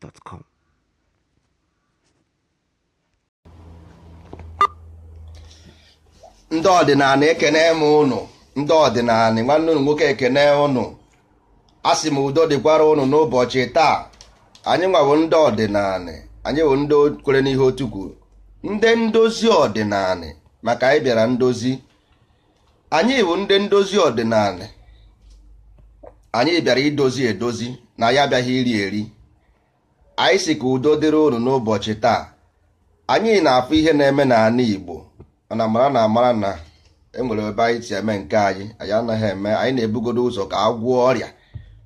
gmail.com. ndị ọdịnala ekene m ụnụ ndị ọdịnala nwanne ụnụ nwoke ekene ụnụ asị m udo dịkwara ụnụ n'ụbọchị taa anyị nwawo ndị ọdịnala anyị bụ ndị kwere n'ihe otu kwuru ndị ndozi ọdịnala maka anyị bịara ndozi anyị bụ ndị ndozi ọdịnala anyị bịara idozi edozi na ya abịaghị iri eri anyị si ka udo dịrị unu n'ụbọchị taa anyị na-afụ ihe na-eme n'ala Igbo mana mara na amara na enwere ebe anyị si eme nke anyị anyị anaghị eme anyị na-ebugodo ụzọ ka agwọ ọrịa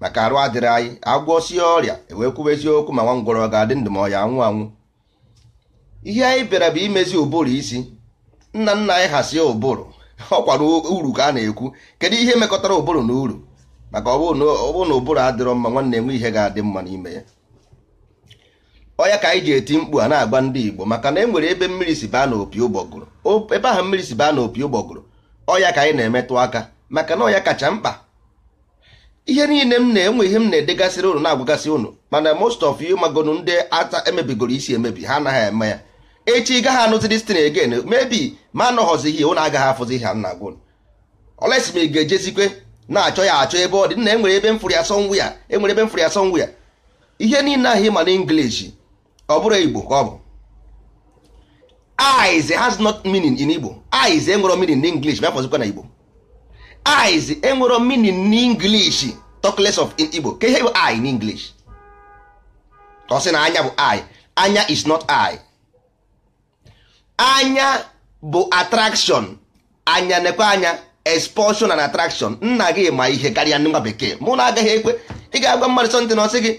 maka arụ adịrị anyị sie ọrịa ewee kwuba eziokwu ma nwa ngwọrọ ga-adị ndụ ma ọ anwụ anwụ ihe anyị bịara bụ imezi ụbụrụ isi nna nna anyị hasie ụbụrụ ọ kwara uru ka a na-ekwu kedu ihe mekọtara ụbụrụ na uru maka ọ na ụbụrụ adịrọ mma nwanne enwe ihe ga-adị mma n'ime ya ọya ka anyị ji eti mkpu a na agba ndị Igbo maka na e nwere ebe mmiri si baa n'opi ụgbọgụrụ ebe ahụ mmiri si baa n'opi ụgbọgụrụ ọya ka anyị na-emetụ aka maka na ọya kacha mkpa ihe niile m na-enwe ihe m na-edegasịrị ụnụ na-agwagasị ụnụ mana most of you magonu ndị ata emebigoro isi emebi ha anaghị eme ya echi ị gaghị anụzi destin again mebi ma anọghọzighị ụnụ agaghị afụzi ha nna gwa olesi ma ga-ejezikwe na-achọ ya achọ ebe ọ dị na enwere ebe mfụrụ ya sọnwụ e ya enwere ebe mfụrụ ya sọnwụ ya ihe niile ahụ ịma na ọ bụrụ igbo ka ọ bụ eyes has not meaning in igbo eyes enwero meaning n'english bịa fọzikwa na igbo eyes enwero meaning n'english talk less of in igbo ka ihe bụ eye n'english ka ọ sị na anya bụ eye anya is not eye anya bụ attraction anya nekwe anya expulsion and attraction nna gị ma ihe karịa nwa bekee mụ na agaghị ekwe ị ga-agwa mmadụ sọntị na ọsị gị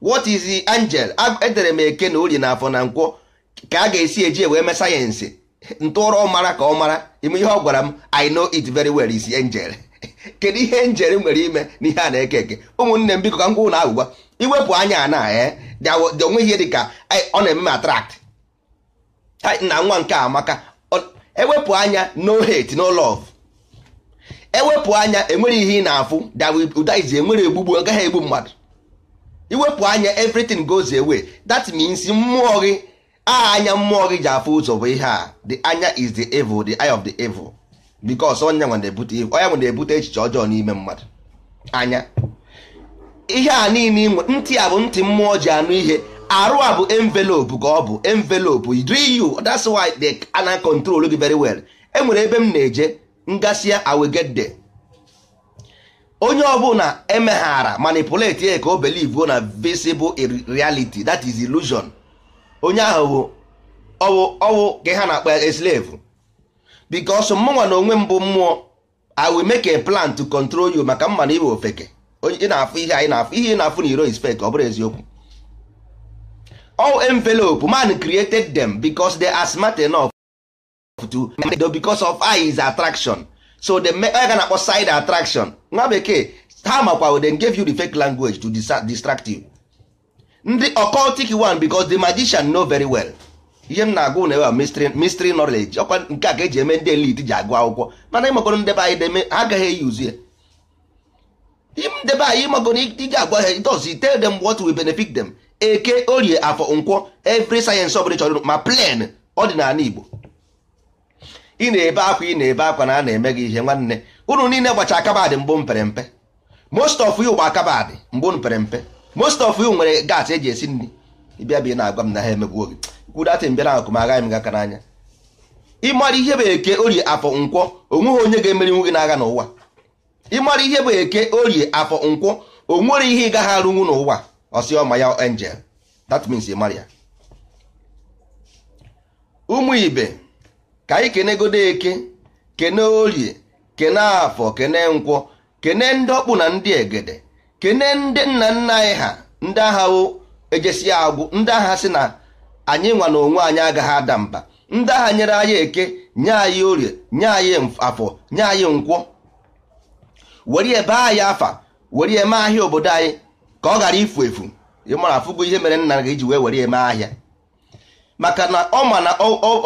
what is the angel edere m eke na ori na afọ na nkwọ ka a ga-esi eji wee mee sayensị ntụrọ mara ka ọ mara ime ihe ọ gwara m i know it very well is angel kedu ihe njere nwere ime ihe a na-eke eke ụmụnne m biko ka m na agwụgwa iwepụ anya na eh, onwe ihe dị ka eh, ọ na-eme m attract na nwa nke amaka ewepụ anya no hate no love ewepụ anya enwere ihe ị na-afụ dawụdaizi enwere egbugbu gaghị egbu mmadụ iwepụ anya everything goes away that means mmụọ gị anya mmụọ gị ji afụ ụzọ bụ ihe a the anya is the evil the eye of the evil because onye nwe na-ebute echiche ọjọọ n'ime mmadụ anya ihe a niile inwe ntị a bụ ntị mmụọ ji anụ ihe arụ a bụ envelopu ka ọ bụ envelope you that's why they ana control gị very well enwere ebe m na-eje ngasịa I will onye ọbụla emeghara manipulate ya ka o believe na visible reality that is illusion onye ahụ ọwụ ọwụ ka ha na-akpa slave because mụnwa na onwe mbụ mmụọ i will make a plan to control you maka mma na iwe ofeke na-afụ ihe anyị na-afụ ihe ị na-afụ na iro is ọ bụrụ eziokwu all envelopu man created them because they are smart enough to because of eyes attraction so the ga na-akpọ side attraction nwa bekee ha makwa they gave you the fake language to distract you ndị occultic one because the magician know very well ihe m na-agụ na ewa mystery knowledge ọkwa nke a ka eji eme ndị elite ji agụ akwụkwọ mana ịmakọrọ ndebe anyị deme ha agaghị eyi uzu ya ndebe anyị ịmakọrọ iji agwa ha does it tell them what will benefit them eke orie afọ nkwọ every sayensị ọbụla chọrọ ma plan ọdịnala Igbo ị na-ebe akwa ị na-ebe akwa na a na-eme gị ihe nwanne unu niile gbacha akabadị mbụ mpere mpe most of you gba akabadị mbụ mpere mpe most of you nwere gas eji esi nri ịbịa bịa na-agwa m na ha emegbuo gị kwudatị mbịa na akụm agaghị m gaka n'anya ịmara ihe bụ eke orie afọ nkwọ onweghị onye ga-emerinwu gị n'agha n'ụwa ịmara ihe bụ eke orie afọ nkwọ o nwere ihe ị gaghị arụnwu n'ụwa ọma ya angel that means ịmara ya ụmụ ibe ka anyị kenegodo eke kene orie kene afọ kene nkwọ kene ndị ọkpụ na ndị egede kene ndị nna nna anyị ha ndị agha wo ejesi agwụ ndị agha si na anyị nwa na onwe anyị agaghị ada mba ndị agha nyere anyị eke nye anyị orie nye anyị afọ nye anyị nkwọ were ebe anyị afa were eme ahịa obodo anyị ka ọ ghara ifu efu ịmara afụgo ihe mere nna gị ji wee were eme ahịa maka na ọ ma na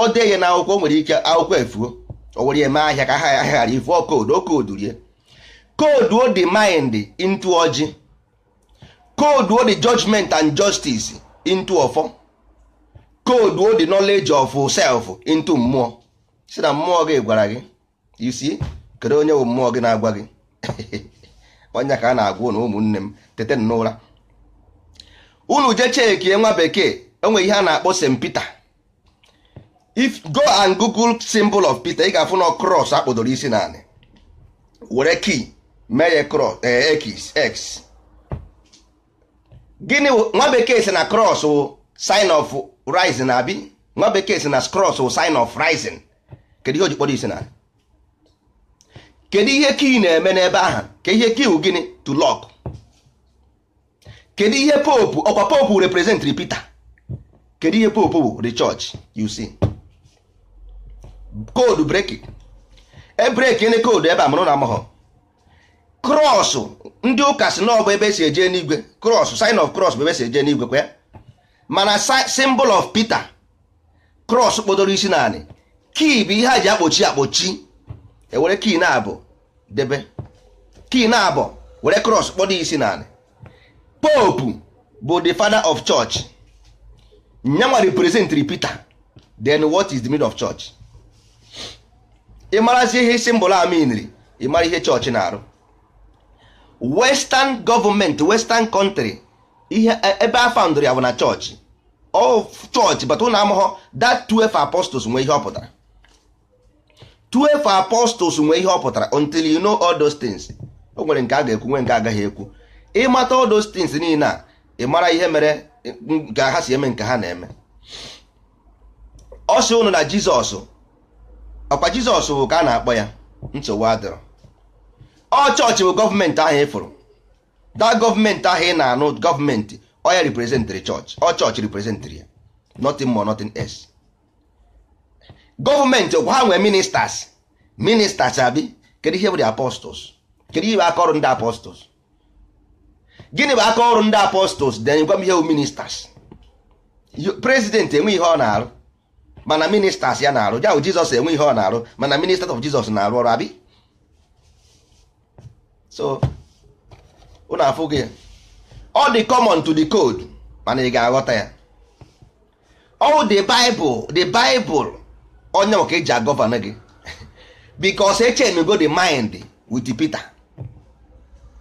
ọ dee na akwụkwọ nwere ike akwụkwọ efuo o were eme ahịa ka ha ahịa ghara ivụọ koodu o koodu rie koodu o the mind into ọjị koodu o the judgment and justice into ọfọ koodu o the knowledge of self into mmụọ si na mmụọ gị gwara gị you see kedu onye bụ mmụọ gị na-agwa gị onye ka a na-agwa na ụmụnne m tete n'ụra unu je chekie nwa bekee enwe ihe a na-akpọ St Peter if go and google symbol of Peter ị ga-afụ na cross akpọdoro isi naanị were key mee ya cross eh, x x gịnị nwa bekee si na cross wụ sign of rising abi nwa bekee si na cross wụ sign of rising kedu ihe o ji kpọrọ isi naanị kedu ihe key na-eme n'ebe ahụ ka ihe key wụ gịnị to lock kedu ihe pope ọkwa pope representri Peter kedu ihe pope wụ the church you see koodu breki ebreki ndị koodu ebe amụrụ na amụghọ krọsụ ndị ụka si na ebe esi eje n'igwe krọsụ sign of cross bụ ebe esi eje n'igwe kwa mana symbol of Peter krọs kpodoro isi naanị kii bụ ihe a ji akpochi akpọchi ewere kii na-abụ debe kii na-abụ were krọs kpodo isi naanị popu bụ the father of church nyanwa representri Peter then what is the of church ịmarazi ihe simbụl aminri ịmara ihe chọọchị na-arụ western gọọmenti western kọntrị ihe e, ebe a faụndụrụ ya bụ na chọọchị ọ chọọchị bata ụlọ amụghọ that 12 apostles nwee ihe ọ pụtara 12 apostles nwee ihe ọ pụtara until you know all those things o nwere nke a ga-ekwu nwee nke agaghị ekwu ịmata all those things niile a ị mara ihe mere ka ha si eme nke ha na-eme ọ sị ụnụ na Jizọs ọkwa jizọs bụ ka a na-akpọ ya nsogbu adịrọ ọ chọọchị bụ gọọmenti ahụ ịfụrụ da gọọmenti ahụ ị na-anụ gọọmenti ọ ya reprezentịrị chọọchị ọ chọọchị riprezentịrị ya nothing more nothing s. gọọmenti ọkwa ha nwee ministers ministers abi kedu ihe bụ the apostles kedu ihe bụ aka ọrụ ndị apostles gịnị bụ aka ọrụ ndị apostles then gwa m ihe bụ ministers Prezidenti enwe ihe ọ na-arụ mana ministers ya na-arụ ya bụ jizọs enwe ihe ọ na-arụ mana ministers of jizọs na-arụ ọrụ abi so ụlọ afụ gị ọ dị common to the code mana ị ga-aghọta ya ọwụ the bible the bible onye maka eji agọvanọ gị because echenugo the mind with peter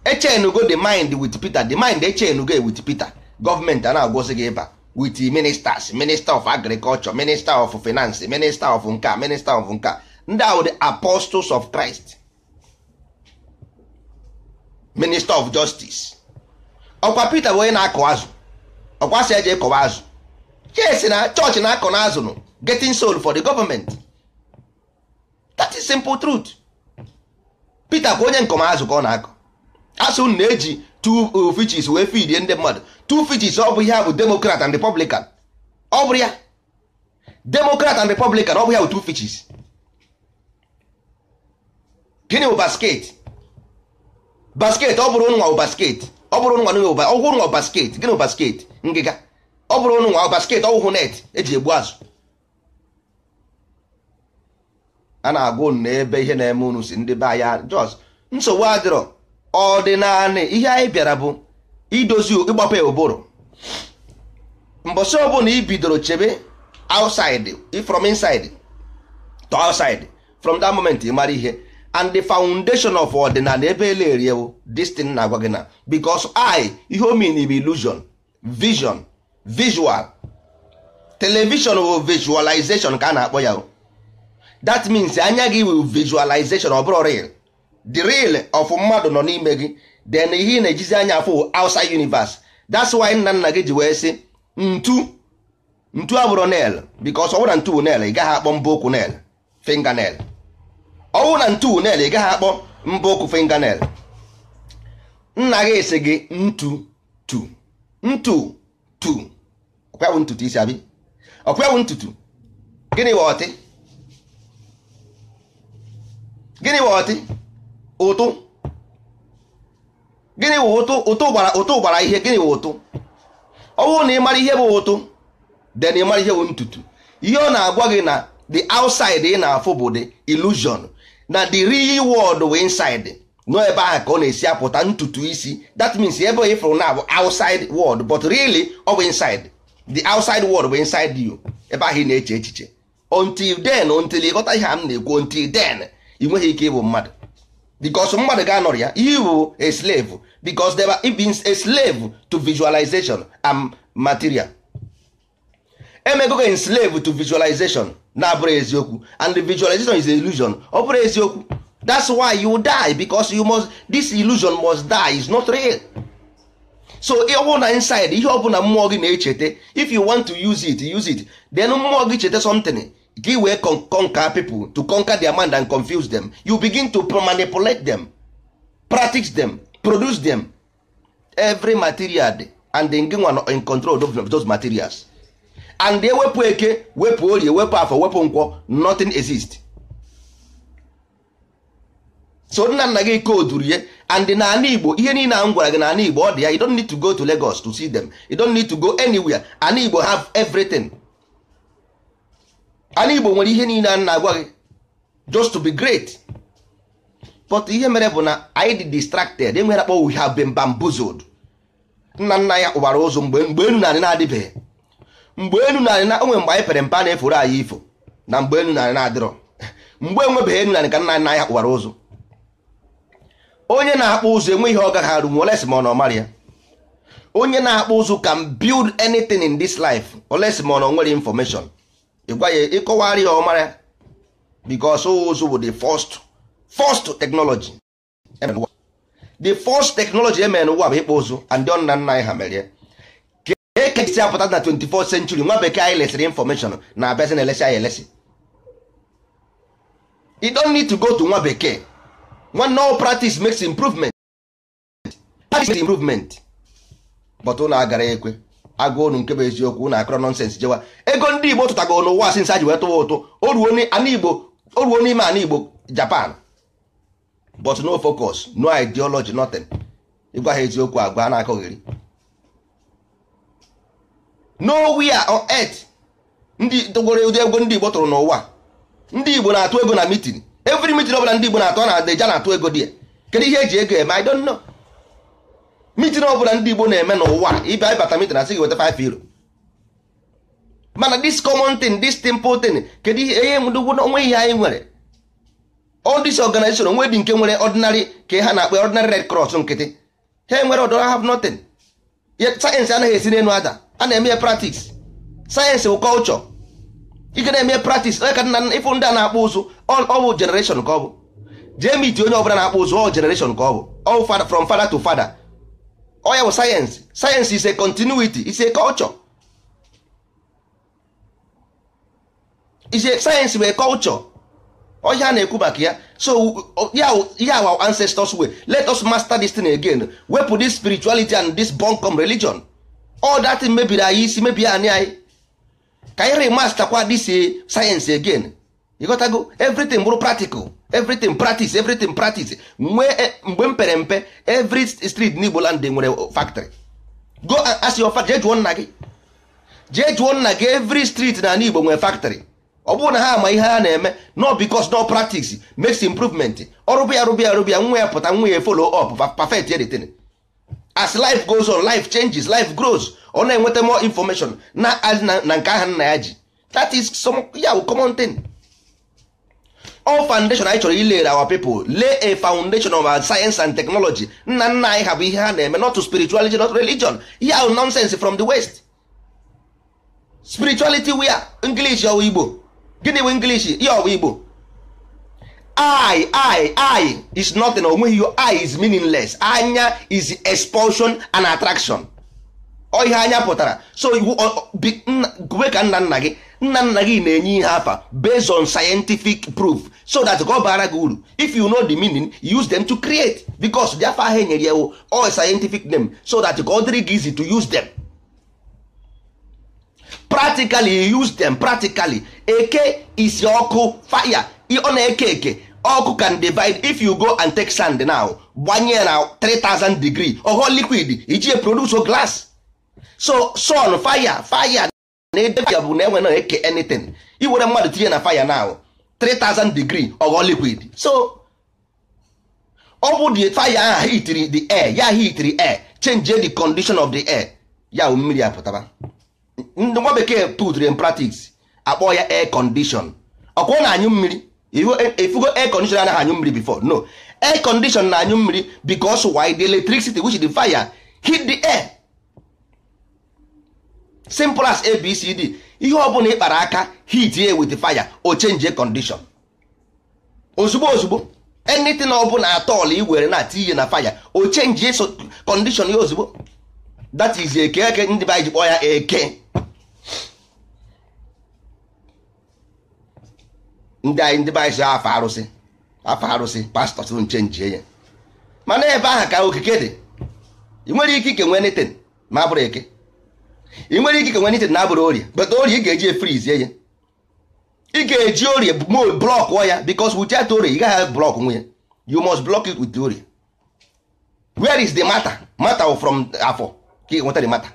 echenugo the mind with peter the mind echenugo with peter gọọmenti a na-agwụsị gị ịba with ministers minister of agriculture minister of finance minister of nka minister of nka ndị ahụ the apostles of Christ minister of justice okwa Peter bụ onye na-akụ azụ ọkwa si azụ yes na chọọchị na-akọ na azụ nụ getting soul for the government that is simple truth Peter kwa onye nkọmazụ ka ọ na-akọ asụ na-eji two uh, fitches wee fidie ndị mmadụ two fitches ọ bụ ihe a bụ democrat and republican ọ bụ ya democrat and republican ọ bụ ya bụ two fitches gịnị bụ basket basket ọ bụrụ nwa basket ọ bụrụ nwa nwe ọgwụ nwa basket gịnị basket ngịga ọ bụrụ nwa basket ọgwụhụ net eji egbu azụ a na-agwa na ebe ihe na-eme unu si ndị be anya jos nsogbu adịrọ ọdịnala ihe anyị bịara bụ idozi ịgbape ụbụrụ mbọsị ọbụla i bidoro chebe outside from inside to outside from that moment ị mara ihe and the foundation of ọdịnala ebe eleriewo destin na-agwa gị na because I ihe o mean bụ illusion vision visual television bụ visualization ka a na-akpọ ya that means anya gị will visualization ọ bụrụ ọrịa. the real of mmadụ nọ n'ime gị then ihe ị na-ejizi anya afọ outside universe that's why nna nna gị ji wee sị ntu ntu abụrụ nail because ọwụna na ntu nail ị gaghị akpọ mbụ okwu nail finger nail ọwụ na ntu nail ị gaghị akpọ mbụ okwu finger nail nna gị sị gị ntu tu ntu tu ọkwawụ ntutu isi abi ọkwawụ ntutu gịnị bụ gịnị bụ ụtụ gịnị bụ ụtụ ụtụ gbara ụtụ gbara ihe gịnị bụ ụtụ ọ na ị mara ihe bụ ụtụ then ị mara ihe bụ ntutu ihe ọ na-agwa gị na the outside ị na-afụ bụ the illusion na the real world bụ inside nọ ebe ahụ ka ọ na-esi apụta ntutu isi that means ebe ị fụrụ na bụ outside world but really ọ bụ inside the outside world bụ inside you ebe ahụ ị na-eche echiche until then until ị ghọta ihe a m na-ekwu until then ị nweghị ike ịbụ mmadụ because mmadụ ga-anọrọ ya you a slave because they were a slave to visualization and material emegogo in slave to visualization na-abụrụ eziokwu and the visualization is an illusion ọ eziokwu that's why you die because you must this illusion must die is not real so ịhụ na inside ihe ọbụla mmụọ gị na-echeta if you want to use it use it then mmụọ gị cheta something gị wee conquer people to conquer their mind and confuse them you begin to manipulate them practice them produce them every material dị and gị nwa in control of those materials and ewepụ eke wepụ orie wepụ afọ wepụ nkwọ nothing exist so nna nna gị koduru ya and n'ala igbo ihe niile na m gwara gị n'ala igbo ọ dị ya you don't need to go to lagos to see them you don't need to go anywhere ala igbo have everything ala igbo nwere ihe niile a na-agwa gị just to be great but ihe mere bụ na anyị dị distracted enwere akpọ we have been nna nna ya kpụbara ụzọ mgbe mgbe enu narị na-adịbeghị mgbe enu narị na onwe mgbe anyị pere mpa na-eforo anyị ifo na mgbe enu narị na-adịrọ mgbe enwebeghị enu narị ka nna nna ya kpụbara ụzọ onye na-akpụ ụzọ enwe ihe ọ gaghị arụ nwe olesi ma ọ na ọmarị ya onye na-akpụ ụzọ can build anything in this life olesi ma ọ na o nwere information ịgwa ya ịkọwara ya ọmara because ụzụ bụ the first first technology e the first technology emere n'ụwa bụ ịkpụ ụzụ and ndị nna nna anyị ha mere ya ka ekesi apụta na 24 century nwa bekee anyị lesịrị information na abịazi na elesi anyị elesi you don't need to go to nwa bekee nwanne all practice makes improvement practice makes improvement but ụnụ agara ekwe agụ unu nke bụ eziokwu na akọrọ nọnsens jewa ego ndị igbo tụtago n'ụwa nsa ji wee tụwa ụtụ o ruo n'ime ana igbo japan but no focus no ideology nothing ịgwa ha eziokwu agwa na-akọghịrị nowhere on earth ndị tụgoro ụdị ego ndị igbo tụrụ n'ụwa ndị igbo na-atụ ego na mitin every mitin bụla ndị igbo na-atụ na deja na-atụ ego dị kedu ihe eji ego eme i don't know mitin bụla ndị Igbo na-eme n'ụwa ịbịa ịbata mitin asị gị weta 5 euro mana dis common thing dis simple thing kedu ihe ihe onwe ihe anyị nwere all this organization onwe dị nke nwere ordinary ka ha na-akpa ordinary red cross nkịtị ha enwere ọdọ have nothing sayensị anaghị esi n'elu ada a na-eme ya practice sayensị bụ culture ike na-eme practice onye ka nna ịfụ ndị a na-akpụ ụzụ ọ bụ generation ka ọ bụ jee miti onye ọbụla na-akpụ ụzụ ọ generation ka ọ bụ all from to father ọ ya bụ sayensị sayensị is a continuity is a culture is a sayensị bụ a culture ọhịa ya na-ekwu maka ya so ya our ancestors way let us master this thing again wepụ this spirituality and this bunkum religion all that mebiri anyị isi mebi anyị anyị ka anyị remasterkwa this eh, sayensị again ịghọtago everything bụrụ practical everything practice everything practice mgbe eh, mpere mpe every street n'Igbo land nwere factory go eh, as your father jee nna gị jee jụọ nna gị every street na Igbo nwere factory ọ bụrụ na ha ama ihe ha na-eme no because no practice makes improvement ọrụbịa rụbịa rụbịa nwa ya pụta nwa ya follow up perfect editing as life goes on life changes life grows ọ na-enweta more information na na nke aha nna ya ji that is some ya common all foundation anyị chọrọ ilere our pipo lay a foundation of science and technology nna nna anyị ha bụ ihe ha na-eme not to spirituality not religion ihe ahụ nonsense from the west spirituality wia english ọwụ igbo gịnị bụ english ya ọwụ igbo i i i is nothing onweghị your eye is meaningless anya is expulsion and attraction ọ ihe anya pụtara so kwe ka nna nna gị nna nna gị na-enye ihe afa based on scientific proof so that ka ọ bara gị uru if you know the meaning use them to create because ahịa afa ahụ enyere ya all scientific name so that ka ọ dịrị gị easy to use them practically use them practically eke isi ọkụ fire ọ na-eke eke ọkụ can divide if you go and take sand now gbanye na 3000 degree ọghọ liquid iji produce glass so sun fire fire na ede fire bụ na enwe na eke anything iwere mmadụ tinye na fire now 3000 degree ọghọ liquid so ọ bụ the fire ahụ hitiri the air ya hitiri air change the condition of the air ya mmiri apụtaba ndị nwa bekee putri in practice akpọ ya air condition ọkwọ na anyụ mmiri ifugo e, air condition anaghị anyụ mmiri before no air condition na anyụ mmiri because why the electricity which the fire hit the air simple as abcd ihe ọbụla ị kpara aka hit ya with fire o change condition ozugbo ozugbo anything ọbụla atọl i were na tinye na fire o change condition ya ozugbo that is eke eke ndị be ji ya eke ndị anyị ndị afọ arụsị afọ arụsị pastọ tụrụ nche ya mana ebe ahụ ka okike dị ị nwere ike ike nwee netin ma bụrụ eke ị nwere ike nwe nitin na-abụrụ orie but orie ị ga-eji efrizie ya ị ga-eji orie blọkụọ ya bikos wichat orie ị gaghị blọk nwe ya you must block it with orie where is the matter matter from afọ ka ị nweta the matter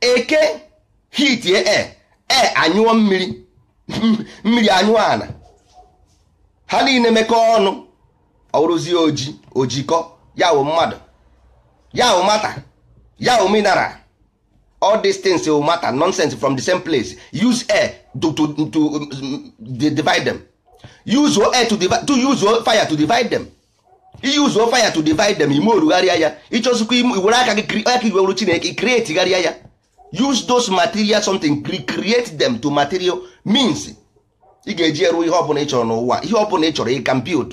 eke hitie e e anyụọ mmiri mmiri anyụọ ana ha niile mekọọ ọnụ ọrụzie oji ojikọ ya wụ mmadụ ya o mata ya o minara all these things o mata nonsense from the same place use air to to to um, divide them use air to divide to use fire to divide them use fire to divide them ime orugharịa ya ịchọzikwa iwere aka gị aka iwewuru chineke creategharịa ya use those material something create them to material means ị ga-eji eruo ihe ọbụla ị chọrọ n'ụwa ihe ọbụla ị chọrọ ị can build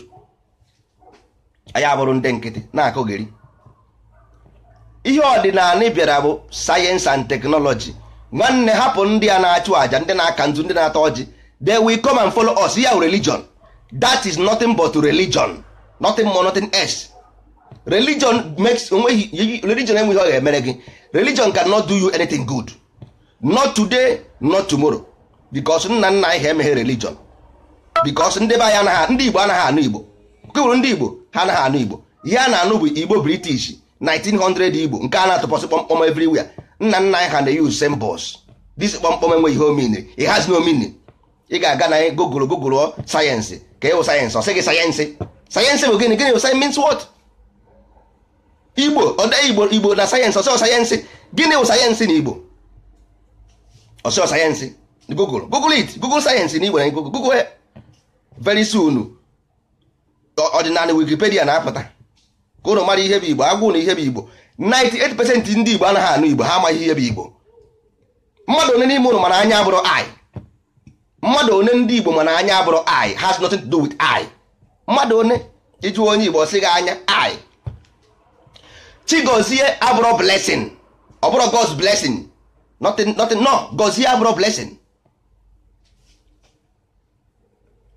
ndị nkịtị na-akụgheri ihe ọdịnala bịara bụ sayensị and teknọlọji nwanne hapụ ndị a na-achụ àjà ndị na-aka nzu ndị na-ata ọjị they will come and follow us ya religion that is nothing but religion nothing more nothing else religion makes religion enweghị ọ ga-emere gị religion not do you anything good not today not tomorrow because nna nna anyị ha emeghe religion because ndị be anyị anaghị ndị Igbo anaghị anụ Igbo kewuru ndị Igbo ha anaghị anụ Igbo ya na-anụ bụ Igbo British 1900 igbo nke a na-atụpọsị kpọmkpọm everywhere nna nna anyị ha na-use symbols this kpọmkpọm enweghị ihe omini it has no meaning ị ga-aga na gogoro gogoro sayensị ka ịwụ e sayensị ọ sị gị sayensị sayensị bụ gịnị gịnị sayensị means what igbo ọdọ igbo igbo na sayensị ọsịọ sayensị gịnị wụ sayensị na igbo ọsịọ sayensị google google it google sayensị na igbo na google google very soon ọdịnala wikipedia na-apụta ka ụnụ mara ihe bụ igbo agwụ na ihe bụ igbo 98% ndị igbo anaghị anụ igbo ha amaghị ihe bụ igbo mmadụ one n'ime ụnụ mana anya abụrụ i mmadụ one ndị igbo mana anya abụrụ i has nothing to do with i mmadụ one ịjụ onye igbo sị gị anya i chigozie abụrụ blesin ọ bụrụ god's blessing nothing no gozie abụrụ blesin.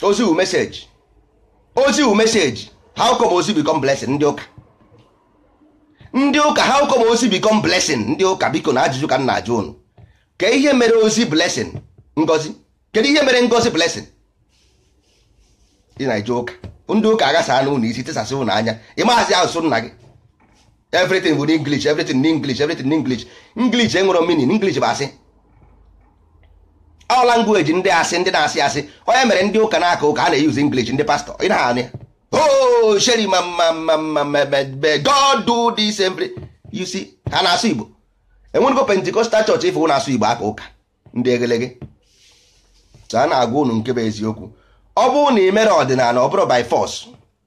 ozi wu meseji ozi wu meseji how come ozi become blesin ndị ụka ndị ụka how come ozi become blessing ndị ụka biko na ajụjụ ka m na-ajụ unu ka ihe mere ozi blessing ngozi kedu ihe mere ngozi blessing ị na-eje ụka ndị ụka agasa na unu isi tesasị unu anya ị maazị asụsụ nna gị everything bụ n'English everything n'English everything n'English English enwere meaning English bụ asị all language ndị asị ndị na-asị asị onye mere ndị ụka na-aka ụka a na-eyuzi English ndị pastọ ị na-anụ ya oh sheri ma mma mma mma mmebe god do this every you see ha na-asụ igbo enwenugo pentikọstal chọọchị ife ụnụ asụ igbo aka ụka ndị egelege a na-agwa ụnụ nke bụ eziokwu ọ bụrụ na ị mere ọdịnala ọ bụrụ by force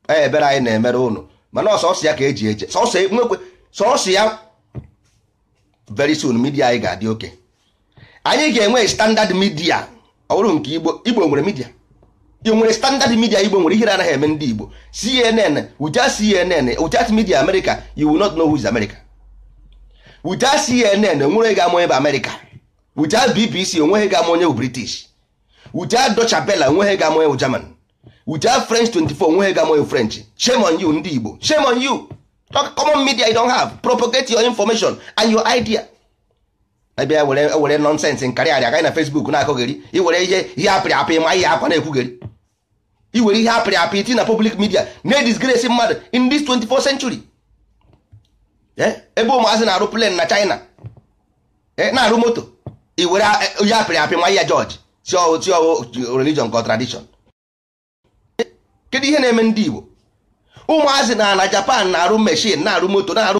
e ebere anyị na-emere ụnụ mana ọsọsọ ya ka eji eje sọsọ e, nwekwe sọsọ ya very soon midia anyị ga-adị oke anyị ga-enwe standard midia ọ bụrụ nke igbo igbo nwere midia ị nwere standard media igbo nwere ihere anaghị eme ndị igbo cnn without cnn without media america you will not know who is america without cnn onwere ga ama onye bụ america without bbc onweghị ga ama onye bụ british without deutsche bella onweghị ga ama onye bụ german without french 24 onweghị ga ama onye french shame on you ndị igbo shame on you common media you don't have propagate your information and your idea ebe were nonsense nkarịarị agaghị na facebook na-akọgheri iwere ihe ihe apịrị apị ma ihe akwa na-ekwugheri iwere ihe apịrị apị iti na public media na-edisgrace mmadụ in this 24th century eh? ebe ụmụazị na-arụ plane na China eh? na-arụ moto iwere onye eh, apịrị apị nwa ya George si ọwụ religion ka tradition kedu ihe na-eme ndị Igbo ụmụazị na na Japan na-arụ meshin na-arụ moto na-arụ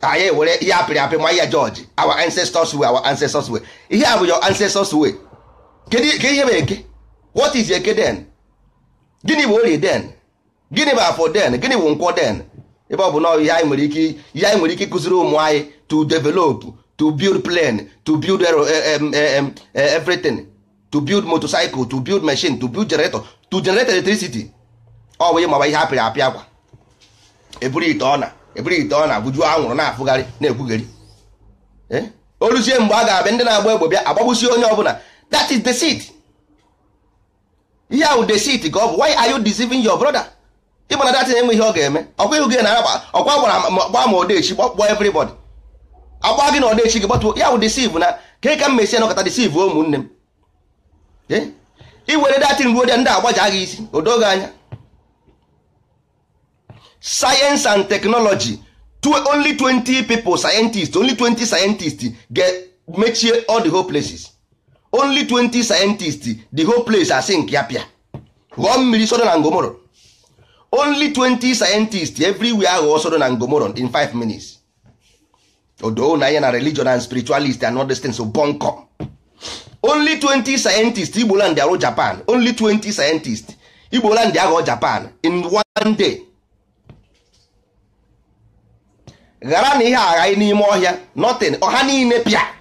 anyị ewere ihe apịrị apị nwa ya George our ancestors way our ancestors way ihe a bụ your ancestors way kedu ihe bụ eke what is eke den gịnị bụ orie den gịnị bụ afọ den gịnị bụ nkwọ den ebe ọ bụ na ihe anyị nwere ike ihe anyị nwere ike ịkụziri ụmụ anyị to develop to build plane to build e, e, e, everything to build motorcycle to build machine to build generator to generate electricity ọ bụ ịmawa ihe apịrị apịa akwa eburu ite ọ na eburu ite ọ na bujuo anwụrụ na-afụgharị na-ekwugheri oluzie mgbe a ga-abịa ndị na-agba egbe bịa agbagbusi onye ọbụla that is the seed ihe ahụ deceit ka ọ bụ why are you deceiving your brother ịgba eh, na datin enwe ihe ọ ga-eme ọkwa ihu gị na akpa ọkwa gbara gba ma odechi gbakpọ everybody agba gị na odechi gị gbatuo ya bụ deceive na ka ka m mesi anọkọta deceive ụmụnne m iwere datin ruo ndị agbaja gị isi odogo anya science and technology only 20 people scientist only 20 scientist ga-mechie all the whole places only 20 scientists the whole place are sink ya pia ghọọ mmiri sodo na ngomoro only 20 scientists everywhere ghọọ sodo na ngomoro in 5 minutes odo na ya na religion and spiritualist and all things so bonko only 20 scientists igboland arụ japan only 20 scientists igboland aghọọ japan in one day ghara na ihe aghaghị n'ime ọhịa nothing ọha niile pịa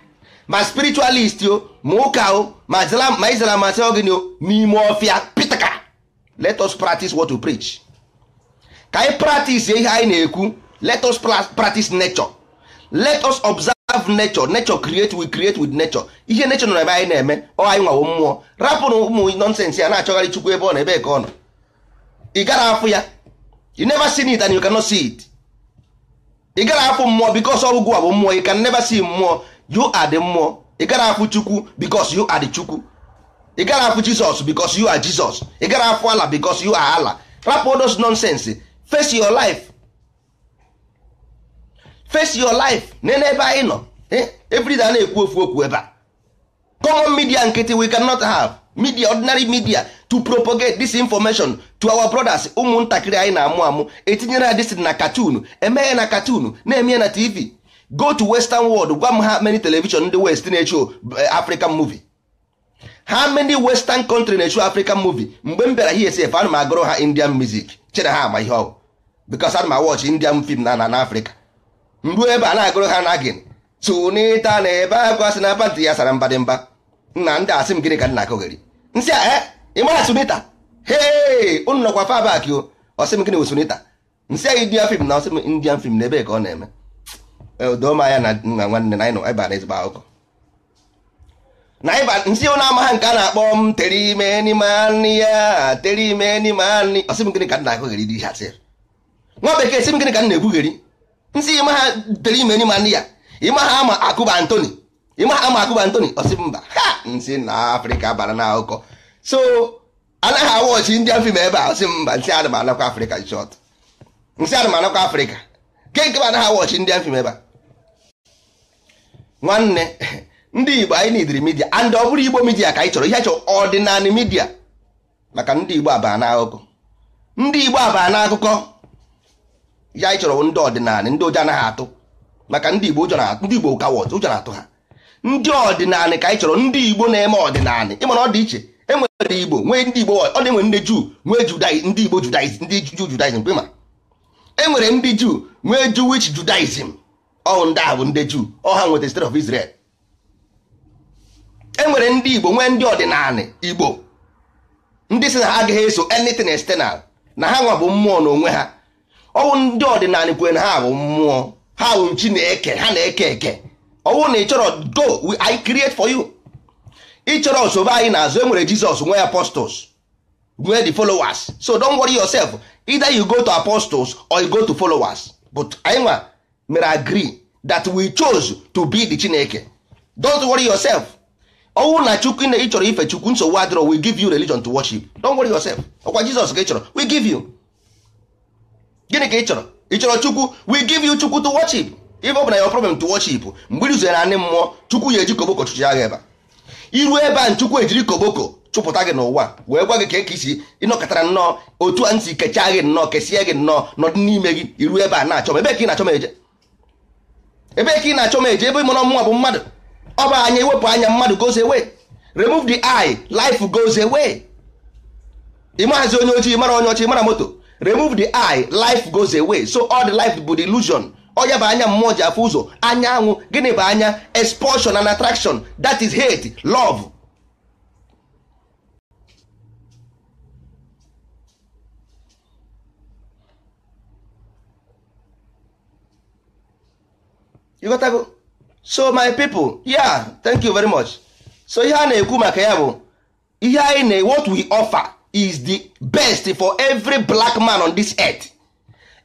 ma spiritualist o ma ụka o ma Islam e asị gịnị o n'ime ọfịa pitaka let us practice what we preach ka anyị e practice ihe anyị e na-ekwu let us practice nature let us observe nature nature create we create with nature ihe nature nọ ebe anyị na-eme ọ anyị nwawo mmụọ na ụmụ nonsense ya na-achọgharị chukwu ebe ọ na ebe ka ọ nọ ị gara afụ ya you never see it and you cannot see it ị gara afụ mmụọ because ọgwụgwụ a bụ mmụọ you can never see mmụọ you are the mmụọ ị gara afụ chukwu because you are the chukwu ị gara afụ jizọs because you are jizọs ị gara afụ ala because you are ala rapụ those nonsense face your life face your life na n'ebe anyị nọ eh, everyday na-ekwu ofu okwu ebe a common media nkịtị we cannot have media ordinary media to propagate this information to our brothers ụmụntakịrị anyị na-amụ amụ etinyere ha disin na katun emeghe na katun na eme na tv go to western world gwa m ha many television ndị west na echu eh, african movie ha many western country na echu african movie mgbe m bịara here sef ana m agụrụ ha indian music chere ha ama ihe ọgwụ because ana m awọchi indian film na na africa mgbu ebe a na-agụrụ ha na gin tụnita na ebe akwa sị na pantị ya sara mba nna ndị asị m gịnị ka nna kogeri nsị a eh, ịmara sunita hee unu nọkwa fabak o ọsị m gịnị wụ sunita nsị a indian film na ọsị m indian film na ebe ka ọ na-eme doma ya na nna nwanne na anyị ịba na ezigbo akụkọ na ịba nsi ọ na-ama nke a na-akpọ m tere ime n'ime anị ya tere ime n'ime anị ọsị m gịnị ka nna akụgheri dị ihe sịrị nwa bekee sị m gịnị ka nna ekwugheri nsị ịma ha tere ime n'ime anị ya ịma ha ama akụba ntoni. ịma ha ama akụba ntoni ọsị mba ha nsi na afrịka bara na akụkọ so anaghị awọchi ndị afim ebe a ọsị mba nsị adị m anakwa afrịka shọt nsị adị m anakwa afrịka nke nke anaghị awọchi ndị afim ebe a nwanne ndị igbo anyị n'idiri midia and ọ bụrụ igbo midia ka anyị chọrọ ihe a chọrọ ọdịnala midia maka ndị igbo abaa na akụkọ ndị igbo abaa na akụkọ ihe anyị chọrọ ndị ọdịnala ndị ụjọ anaghị atụ maka ndị igbo ụjọ na-atụ ndị igbo kawa ụjọ na-atụ ha ndị ọdịnala ka anyị chọrọ ndị igbo na-eme ọdịnala ịma na ọ dị iche enwere igbo nwee ndị igbo ọ dị nwere ndị juu nwee ndị igbo judaism ndị juu judaism enwere ndị juu nwee jewish judaism ọhụ ndị a bụ ndị juu ọha nweta state of Israel e nwere ndị Igbo nwee ndị ọdịnala Igbo ndị si na ha agaghị eso anything external na ha nwa bụ mmụọ na onwe ha ọwụ ndị ọdịnala kwe na ha bụ mmụọ ha bụ Chineke ha na-eke eke ọwụ na ịchọrọ chọrọ go I create for you ị chọrọ osobe anyị n'azụ enwere Jizọs nwee apostles nwee the followers so don't worry yourself either you go to apostles or you go to followers but anyị nwa mere agree that we chose to be the chineke don't worry yourself ọnwụ na chukwu na ị chọrọ ife chukwu nsogbu adịrọ we give you religion to worship don't worry yourself ọkwa jizọs ka ị chọrọ we give you gịnị ka ị chọrọ ị chọrọ chukwu we give you chukwu to worship ife ọ bụ na your problem to worship mgbe ị na anị mmụọ chukwu ya eji koboko chụchị agha ebe iru ebe a chukwu ejiri koboko chụpụta gị n'ụwa wee gwa gị ka e ka isi ịnọkọtara nnọọ otu a ntị kechaa gị nnọọ kesie gị nnọọ nọdụ n'ime gị iru ebe a na-achọ ebe ka ị na-achọ m eje ebe ka ị na-achọ m eje ebe ịmụrọ mụnwa bụ mmadụ ọ bụ anya iwepụ anya mmadụ goes away remove the eye life goes away ịmahazi onye ojii mara onye ọchị mara moto remove the eye life goes away so all the life bụ the illusion onye bụ anya mmụọ ji afụ ụzọ anya anwụ gịnị bụ anya expulsion and attraction that is hate love you got to so my people yeah thank you very much so ihe a na-ekwu maka ya bụ ihe anyị na what we offer is the best for every black man on this earth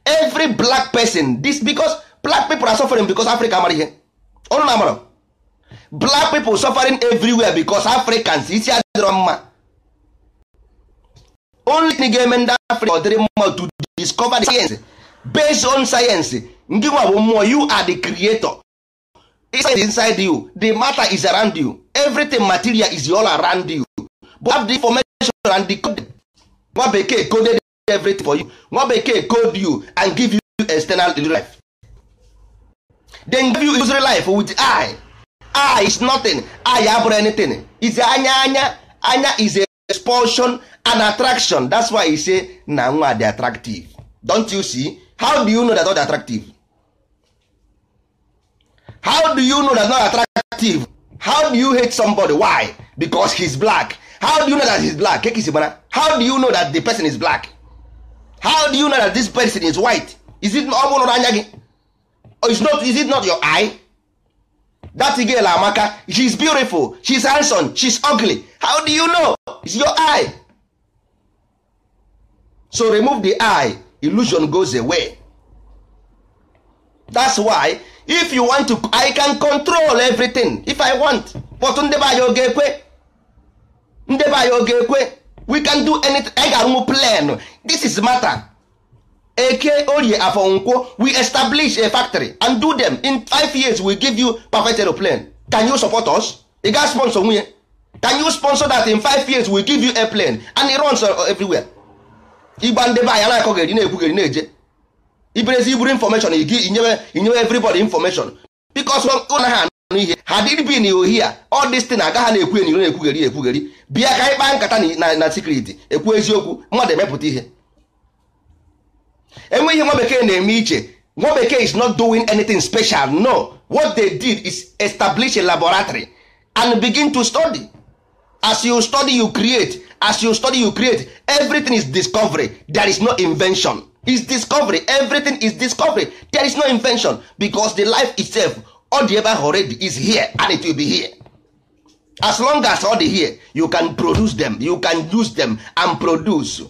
every black person this because black people are suffering because africa amara ihe ọnụ na-amara black people suffering everywhere because africans isi adịrọ mma only thing ga-eme ndị africa ọ dịrị mma to discover the science based on science ndị nwa bụ mmụọ you are the creator inside inside you the matter is around you everything material is all around you but have the information and the code nwa bekee coded everything for you nwa bekee code you and give you external life then give you usury life with eye eye is nothing eye abụrụ anything is anya anya anya is a expulsion and attraction that's why he say na nwa dey attractive don't you see how do you know that all attractive how do you know that's not attractive how do you hate somebody why because he's black how do you know that he's black kekisi gbana how do you know that the person is black how do you know that this person is white is it ọ or anya gị is not is it not your eye that girl amaka she's beautiful she's handsome she's ugly how do you know it's your eye so remove the eye illusion goes away that's why if you want to i can control everything if i want but Ndebe be anyị oge ekwe ndị anyị oge ekwe we can do anything I ga-arụnwu plan this is matter eke orie afọ we establish a factory and do them in five years we give you perfect aeroplane can you support us ị ga sponsor nwunye can you sponsor that in five years we give you airplane and it runs uh, everywhere igba Ndebe be anyị anaghị akọ geri na-ekwu geri na-eje ibere ezi iburu information inyewe inyewe everybody information because naghị anụ ihe ha dịbin ohia ọ dịstin agaghị na-ekwu enyi na-ekwugheri ekwugheri bịa ka anyị kpaa nkata na sikriti ekwu eziokwu mmadụ emepụta ihe enwe ihe nwa bekee na-eme iche nwa bekee is not doing anything special no what they did is establish a laboratory and begin to study as you study you create as you study you create everything is discovery there is no invention is discovery everything is discovery there is no invention because the life itself all the ever already is here and it will be here as long as all here you can produce them you can use them and produce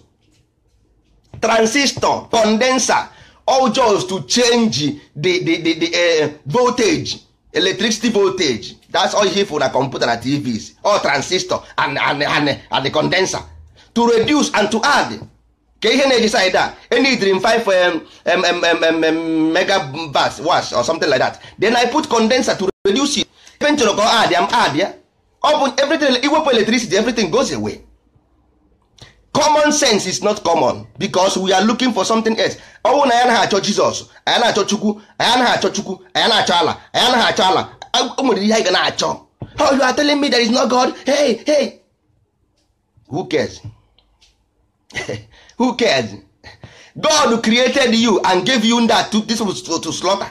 transistor condenser all just to change the, the, the, the uh, voltage electricity voltage that's all need for na computer na tvs all transistor and, and, and, and the condenser to reduce and to add ke ihe na-eji side a enidiri m 5 megabats wash or something like that then I put condenser to reduce it ebe m chọrọ ka ọ adịa m adịa ọ everything iwepụ electricity everything goes away common sense is not common because we are looking for something else ọ na anyị anaghị achọ Jizọs anyị na-achọ Chukwu anyị anaghị achọ Chukwu anyị na-achọ ala anyị anaghị achọ ala o nwere ihe anyị ga na-achọ oh you are telling me there is no God hey hey who cares who cares god created you and gave you that to, this was to, to slaughter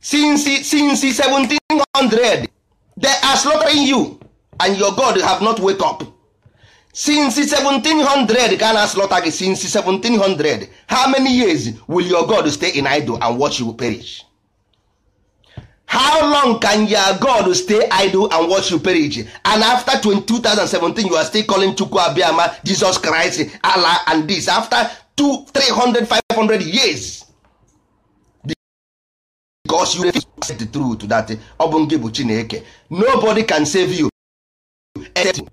since since 1700 they are slaughtering you and your god have not wake up since 1700 can slaughter gị since 1700 how many years will your god stay in idol and watch you perish how long can your god stay idle and watch you perish and after 2017 you are still calling chukwu Abiama, jesus christ allah and this after 2 300 500 years because you refuse to accept the truth that ọ bụ gị bụ chineke nobody can save you except you.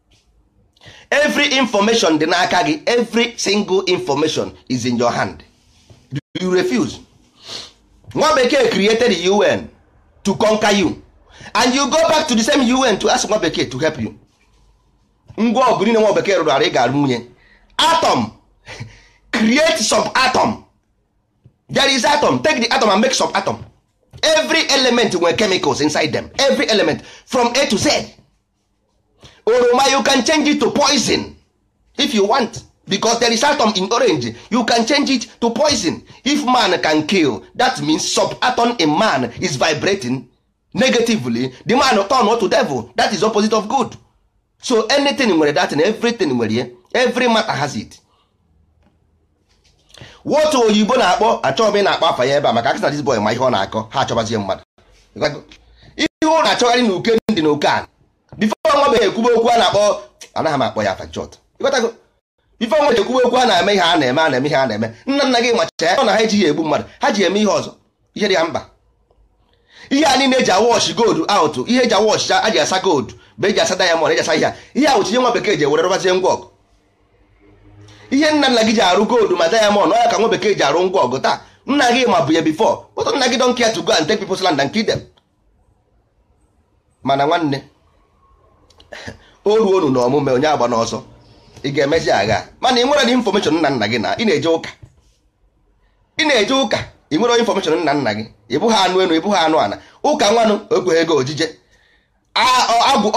every information dị n'aka gị every single information is in your hand you refuse nwa bekee created the un to conquer you and you go back to the same UN to ask nwa bekee to help you ngwa ọgụ niile nwa bekee rụrụ arụ ị ga-arụ nwunye atom create sub atom there is atom take the atom and make sub atom every element nwere chemicals inside them every element from A to Z oroma you can change it to poison if you want because there is atom in orange you can change it to poison if man can kill that means sub atom in man is vibrating negatively the man turn to devil that is opposite of good so anything nwere that and everything nwere ye every matter has it what oyibo na-akpọ achọghị m ị na-akpọ afa ya ebe a maka akịsa dis boy ma ihe ọ na-akọ ha achọbazie mmadụ ihe ọ na-achọgharị n'uke uke ndị na oke a bifo nwa beghị ekwube okwu a na-akpọ anaghị m akpọ ya afa ife ọnwa na-ekwuwe okwu a na-eme ihe a na-eme a na-eme ihe a na-eme nna nna gị macha ọ na ha ejighị egbu mmadụ ha ji eme ihe ọzọ ihe dị ya mba ihe a niile eji awọchị gold out ihe eji awọchị a ji asa gold bụ eji asa dayamọnd eji asa ihe a ihe a ihe nwa bekee ji ewere rụbazie ngwa ọgụ ihe nna nna gị ji arụ gold ma diamond ọya ka nwa bekee ji arụ ngwa ọgụ taa nna gị ma bụ ya before but nna gị don care to go and take people's land and kill mana nwanne o ruo unu na ọmụme onye agba n'ọsọ ị ga-emezi agha mana ị nwere infọmeshọn nna nna gị na ị na-eje ụka ị na-eje ụka ị nwere infọmeshọn nna nna gị ị anụ enu ị bụghị anụ ana ụka nwanụ ekweghị ego ojije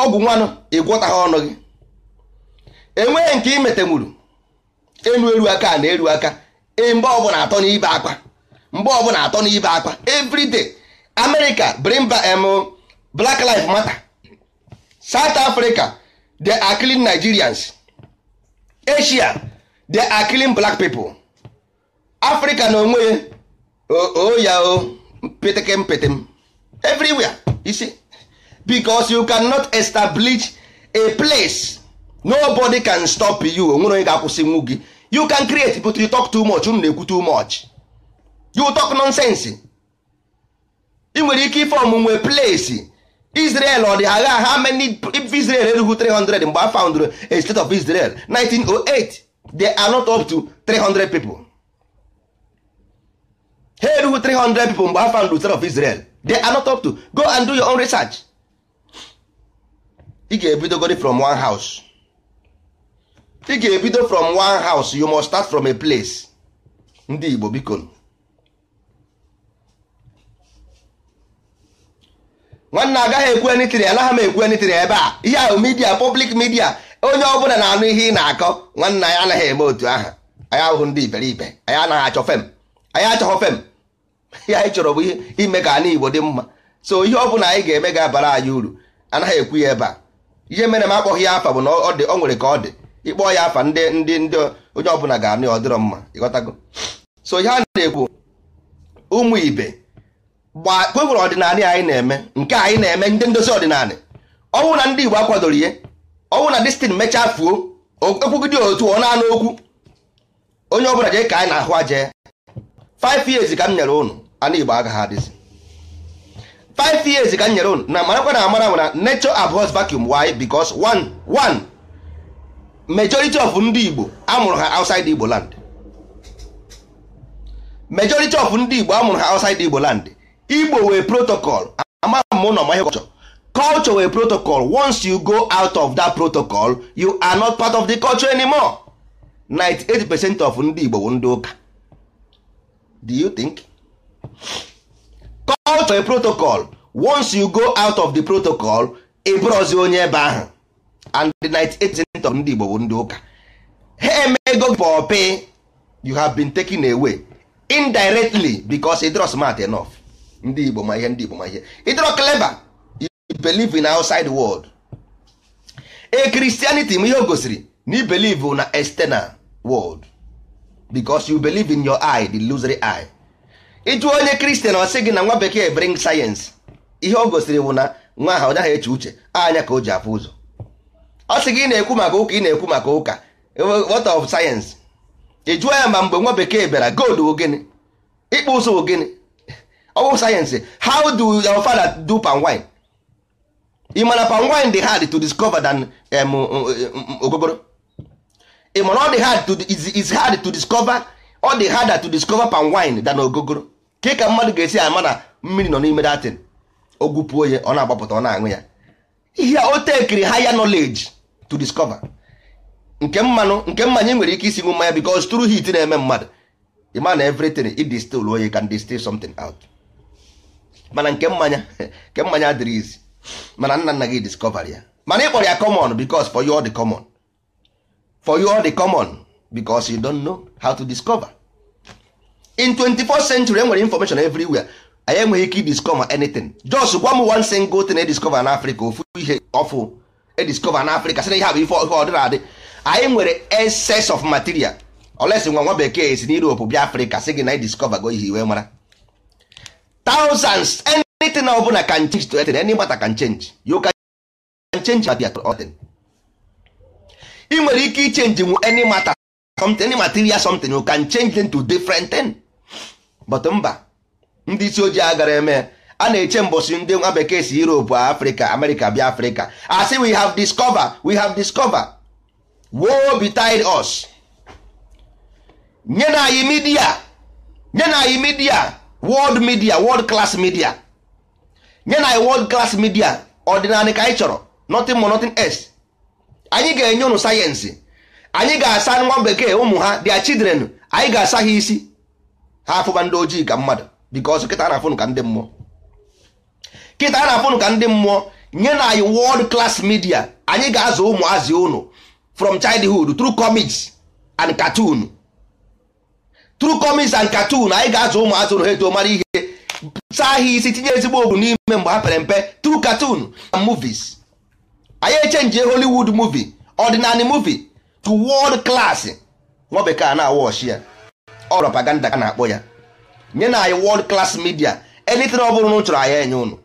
ọgwụ nwanụ ha ọnụ gị enweghị nke imetemuru enu eru aka na eru aka e, mgbe ọbụla atọ n'ibe akwa mgbe ọbụla atọ n'ibe akwa everyday America bring Black Lives Matter South Africa the are Nigerians Asia they are killing black people Africa na onwe oya o peteke mpete everywhere everywhere isi because you cannot establish a place nobody can stop you onwere onye ga-akwụsị nwu gị you can create but you talk too much unu na-ekwu too much you talk nonsense ị nwere ike ifom nwe place Israel ọ dị agha ha many Israel erughị 300 mgbe a found a state of Israel 1908 they are not up to 300 people ha 300 people mgbe a found state of Israel they are not up to go and do your own research ị ga godi from one house ị ga-ebido from one house you must start from a place ndị Igbo bikon nwanne agaghị ekwu enitiri anaghị m ekwu enitiri ebe a ihe ahụ midia public media onye ọbụla na-anụ ihe ị na-akọ nwanne anyị anaghị eme otu aha anyị ahụhụ ndị iberibe anyị anaghị achọ fem anyị achọghọ fem ya anyị chọrọ bụ ihe ime ka ana igbo dị mma so ihe ọbụla anyị ga-eme ga-abara anyị uru anaghị ekwu ya ebe a ihe mere m akpọghị ya afa bụ na ọ nwere ka ọ dị ịkpọ ya afa ndị ndị ndị onye ọbụla ga-anụ ya ọ dịrọ mma ịghọtago so ihe a na-ekwu ụmụ ibe gba nwere ọdịnala anyị na-eme nke anyị na-eme ndị ndozi ọdịnala ọnwụ na ndị Igbo akwadoro ihe ọnwụ na destin mechaa fuo ekwugide otu ọ na-anụ okwu onye ọbụla jee ka anyị na-ahụ aje 5 years ka m nyere ụnụ ana Igbo agaghị adịzi 5 years ka m nyere ụnụ na marakwa na amara nwere nature abhors vacuum why because one one majority of ndị Igbo amụrụ ha outside Igbo land majority of ndị Igbo amụrụ ha outside Igbo land igbo wee protocol amara m ụlọ ma ihe culture culture wee protocol once you go out of that protocol you are not part of the culture anymore 98 percent of ndị igbo bụ ndị ụka do you think culture a protocol once you go out of the protocol ịbụrọzi onye ebe ahụ and the 98 percent of ndị igbo bụ ndị ụka ha emego pay you have been taken away indirectly because ị drọ smart enough ndị igbo ma ihe ndị igbo ma ihe ịdọrọ clever you believe in outside world e christianity m ihe o gosiri na you believe na external world because you believe in your eye the illusory eye ịjụ onye kristian ọ sị gị na nwa bekee bring sayensị ihe o gosiri bụ na nwa ha ọ eche uche anya ka o ji afụ ụzọ ọ sị gị ị na-ekwu maka ụka ị na-ekwu maka ụka what of sayensị ị ya ma mgbe nwa bekee bịara gold bụ gịnị ịkpụ ụzọ bụ gịnị bụ sayensị how do your father do palm wine ị mana palm wine dey hard to discover than um, um, um, ogogoro. ị mana ọ dị hard to is hard to discover ọ dị harder to discover palm wine than ogogoro ka ka mmadụ ga-esi ama na mmiri nọ n'ime datin ogwupuo ya ọ na-agbapụta ọ na-aṅụ ya ihe o tekiri higher knowledge to discover nke mmanụ nke mmanya nwere ike isi ṅụ mmanya because through heat na-eme mmadụ ịma na everything it onye oye can distill something out mana nke mmanya nke mmanya adịrị izi mana nna nna gị discover ya mana ịkpọrọ ya common because for you all the common for you all the common because you don't know how to discover in 24th century enwere information everywhere anyị enweghị ike discover anything just gwa m one single thing ediscover n'afrịka ofu ihe ọfụ ediscover n'afrịka sị na ihe bụ ife ihe ọdịna adị anyị nwere excess of material olesi nwa nwa bekee si na Europe bịa afrịka sị gị na ediscover go ihe iwe mara thousands anything ọ bụla can change to anything any matter can change you can change at your order I nwere ike ichenji any matter something any material something you can change them to different thing but mba ndị isi ojii agara eme a na-eche mbọsị ndị nwa bekee si Europe Africa America bịa Africa as we have discover we have discover woe betide us nye na anyị midia nye na anyị midia world media world class media nye na world class media ọdịnala ka anyị chọrọ nothing more nothing else anyị ga-enye ụnụ sayensị anyị ga-asa nwa bekee ụmụ ha their children anyị ga-asa ha isi ha afụba ndị ojii ka mmadụ because kịta na-afụnụ ka ndị mmụọ kịta na-afụnụ ka ndị mmụọ nye na anyị world class media anyị ga-azụ ụmụazị ụnụ from childhood through comics and cartoon tru kọmis and katun anyị ga-azụ ụmụ atụrụ ha eto mara ihe sa ha isi tinye ezigbo ogwu n'ime mgbe ha pere mpe tru katun and movies anyị echenji hollywood movie ọdịnala movie to world class nwa bekee na-awọ ọchị ya ọ propaganda ka na-akpọ ya nye na anyị world class media anything ọ bụrụ na chọrọ anyị enye ụnụ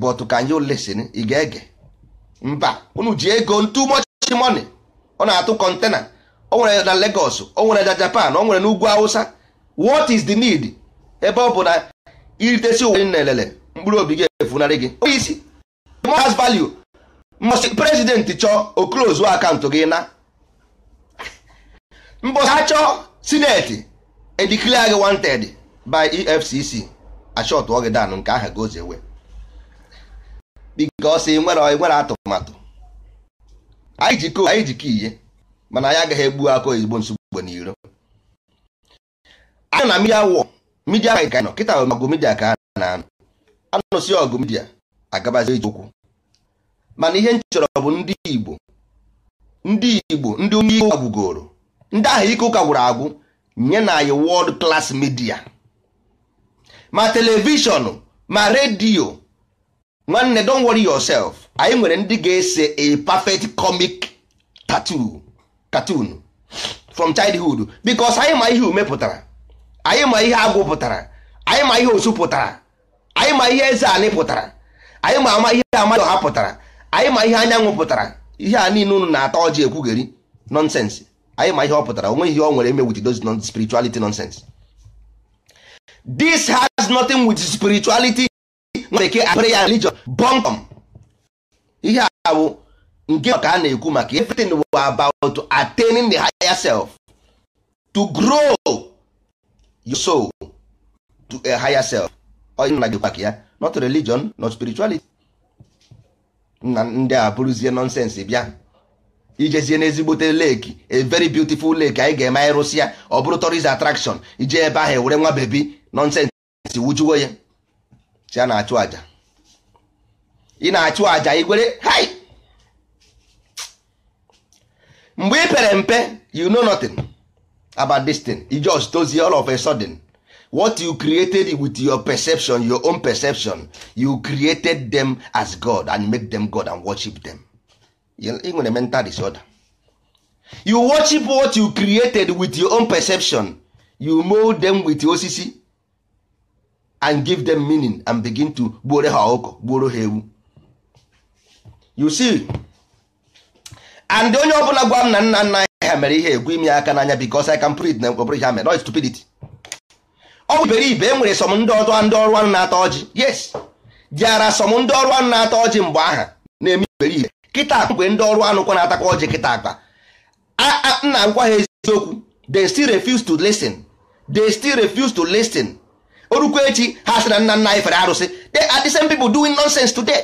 but ka anyị listen ị ga-ege mba unu ji ego too much money ọ na-atụ kọntena o nwere na Lagos o nwere na Japan o nwere n'ugwu ugwu Hausa what is the need ebe ọ bụ na iritesi uwe na elele mkpụrụ obi gị efunarị gị onye isi has value mbọsị prezidenti chọọ oklozu akaụntụ gị na mbọsị ha chọọ sineti ediklia gị wanted by EFCC achọtụọ gị danụ nke aha gozewe bikọsi nwere atụmatụ anyị ji koo anyị ji ka ihe mana anyị agaghị egbu akụ ezigbo nsogbu na iro anyị na midia wọ midia ka anyị nọ kịta ọgụ midia ka a na-anụ anụsị ọgụ midia agabazi ije okwu. mana ihe nchọrọ bụ ndị igbo ndị igbo ndị onye ike ụka gwugoro ndị ahụ ike ụka gwụrụ agwụ nye na anyị wọld class media ma telivishọn ma redio nwanne don't worry yourself anyị nwere ndị ga-ese a perfect comic tattoo cartoon from childhood because anyị ma ihe ume pụtara anyị ma ihe agwụ pụtara anyị ma ihe osu pụtara anyị ma ihe eze anị pụtara anyị ma ama ihe amadụ ọha pụtara anyị ma ihe anyanwụ pụtara ihe a niile unu na-ata ọjị ekwugheri nonsense anyị ma ihe ọ pụtara onwe ihe ọ nwere eme wit those non spirituality nonsense this has nothing with spirituality bekee prayer religion bonkom ihe a bụ nke maka a na-ekwu maka everything was about attaining the higher self to grow your soul to a higher self nna gị kwaka ya not religion not spirituality na ndị a bụrụzie nonsense bịa ijezie n'ezigbote leki a very beautiful lake anyị ga-eme anyị rụsịa ọ bụrụ tourist attraction ije ebe ahụ e were nwa bebi nonsense wujuo ya si a na-achụ aja ị na-achụ aja igwere hai mgbe ị pere mpe you know nothing about this thing you just dozie all of a sudden what you created with your perception your own perception you created them as God and make them God and worship them ị nwere mental disorder you worship what you created with your own perception you mold them with osisi and give them meaning and begin to gboro ha gboro hewu. ha ewu you see and onye ọ bụla gwa m na nna nna anyị ha mere ihe egwu imi aka n'anya because I can print oh, eh, na mkpọbụrụ ihe ha mere stupidity ọ bụ iberibe e nwere sọm ndị ọrụ ndị ọrụ anụ na atọ ọjị yes jara sọm ndị ọrụ anụ na atọ ọjị mgbe aha na-eme iberibe kịta akpa mgbe ndị ọrụ anụ kwa na-atakwa ọjị kịta akpa nna ngwa ha eziokwu they still refuse to listen they still refuse to listen orukwa echi ha sị na nna nna anyị fere arụsị eh. they are the same people doing nonsense today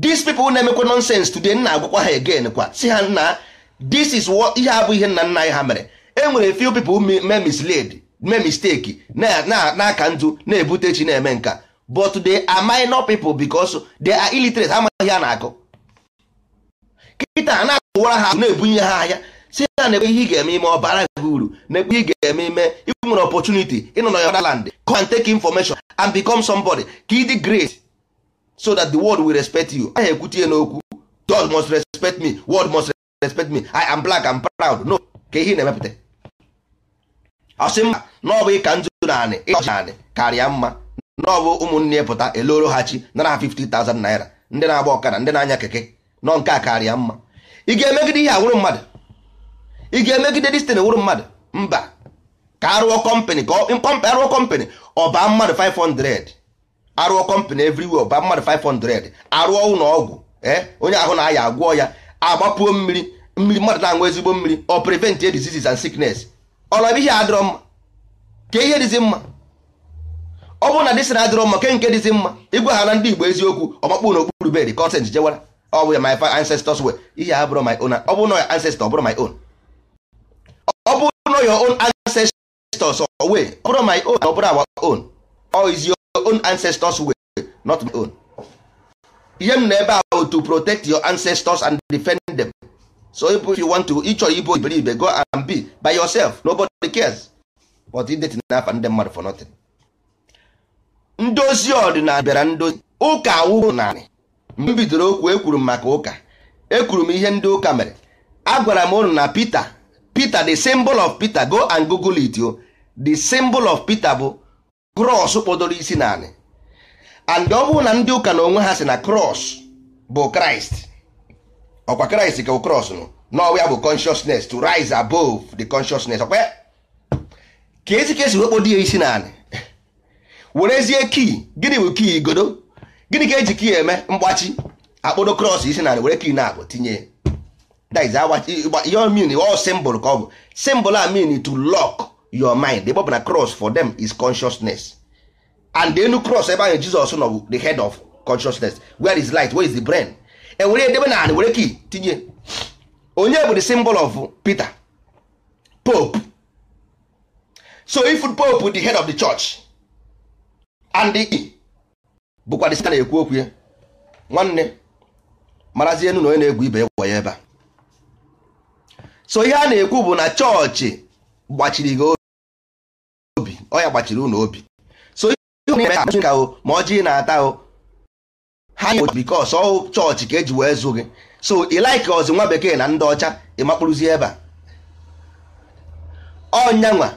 these people na-emekwa nonsense today nna agwakwa ha again kwa si ha nna this is what ihe abụ ihe nna nna anyị ha mere e enwere few people mee misled mee mistake na-aka ndụ na-ebute chi na-eme nka but they are minor people because they are illiterate amaghị ha na-akụ kịta na-akụwara ha na-ebunye ha ahịa si ha na-ekwe ihe ị ga-eme ime ọ bara gị uru na-ekwe ihe ị ga-eme ime ị nwere ịnọ na your land come and take information and become somebody ka ịdị great so that the world will respect you anyị ekwutie n'okwu God must respect me world must respect me I am black and proud no ka ihe na-emepụta asị mba na ọ bụ ịka nzu naanị ịnaanị karịa mma na ọ bụ ụmụnne pụta eloro ha chi nara ha thousand naira ndị na-agba ọkara ndị na-anya keke nọ nke a karịa mma ị ga-emegide ihe awụrụ mmadụ ị ga-emegide destin wụrụ mmadụ mba ka arụọ kọmpanị ka arụọ kọmpanị ọ baa mmadụ 500 arụọ kọmpanị everywhere ba mmadụ 500 arụọ ụlọ ọgwụ e, onye ahụ na-aya agwọ ya agbapuo mmiri mmiri mmadụ na-aṅụ ezigbo mmiri ọ prevent diseases and sickness ọlọbụ ihe adịrọ mma ka ihe dịzi mma ọ bụrụ na dịsị na adịrọ mma ke nke dịzi mma ịgwa ha na ndị igbo eziokwu ọmakpụ n'okpuru bed consent jewara ọ bụ ya my ancestors were ihe abụrụ my own ọ bụrụ na ancestor ọ bụrụ my own ọ bụrụ na your own ancestors ọ ọ bụrụ my own ọ bụrụ our own ọ izi own ancestors way not my own ihe m na ebe a to protect your ancestors and defend them so if you want to ịchọrọ ibo iberibe go and be by yourself nobody cares but idetin n'afa ndị mmadụ for nothing ndozi ọdịnala bịara ndozi ụka awụghị narị m bidoro okwu ekwuru m maka ụka ekwuru m ihe ndị ụka mere agwara m ụnụ na Peter Peter the symbol of Peter go and google it o the symbol of Peter bụ cross kpọdoro isi naanị and ọ bụrụ na ndị ụka na onwe ha si na cross bụ kraịst ọkwa kraịst ka cross nụ n'ọwa ya bụ consciousness to rise above the consciousness ọkwa ka ezi ka esi wekpọdo ya isi naanị werezie kii gịnị bụ kii godo? gịnị ka eji kii eme mgbachi akpọdo cross isi naanị were kii na agụ tinye ihe ọ ọ simbụl ka ọ bụ simbụl a to lock your mind ebe ọ bụ na cross for them is consciousness and the enu cross ebe ahụ Jizọs nọ bụ the head of consciousness where is light where is the brain ewere edebe na were ki tinye onye bụ the symbol of Peter Pope so if Pope the head of the church and the bụkwa the na-ekwu okwu ya nwanne marazie enu na onye na-egwu ibe ya ebe a so ihe a na-ekwu bụ na chọọchị gbachiri gị ọ ya gbachiri unu obi so ihe na-eme ka o ma ọjị na-ata o ha nye bikos ọ chọọchị ka eji wee zụ gị so ị like ọzụ nwa bekee na ndị ọcha ịmakpụrụzi ebe a ọnyanwa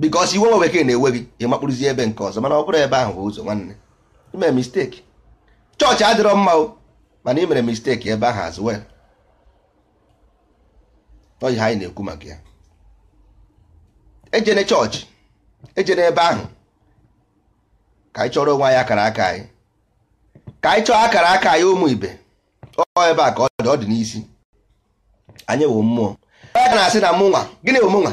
bikos iwe nwa bekee na-ewe gị ịmakpụrụzi ebe nke ọzọ mana ọ bụrụ ebe ahụ bụ ụzọ nwanne ime misteki chọọchị adịrọ mma o mana imere mere misteki ebe ahụ azụ well ọ ha anyị na-ekwu maka ya ejene chọọchị eje n'ebe ahụ ka anyị chọrọ onwe anyị akara aka anyị ka anyị chọọ akara aka anyị ụmụ ibe ọ ebe a ka ọ dị ọ dị n'isi anyị wụ mmụọ aka na-asị na mụnwa gịnị wụ mụnwa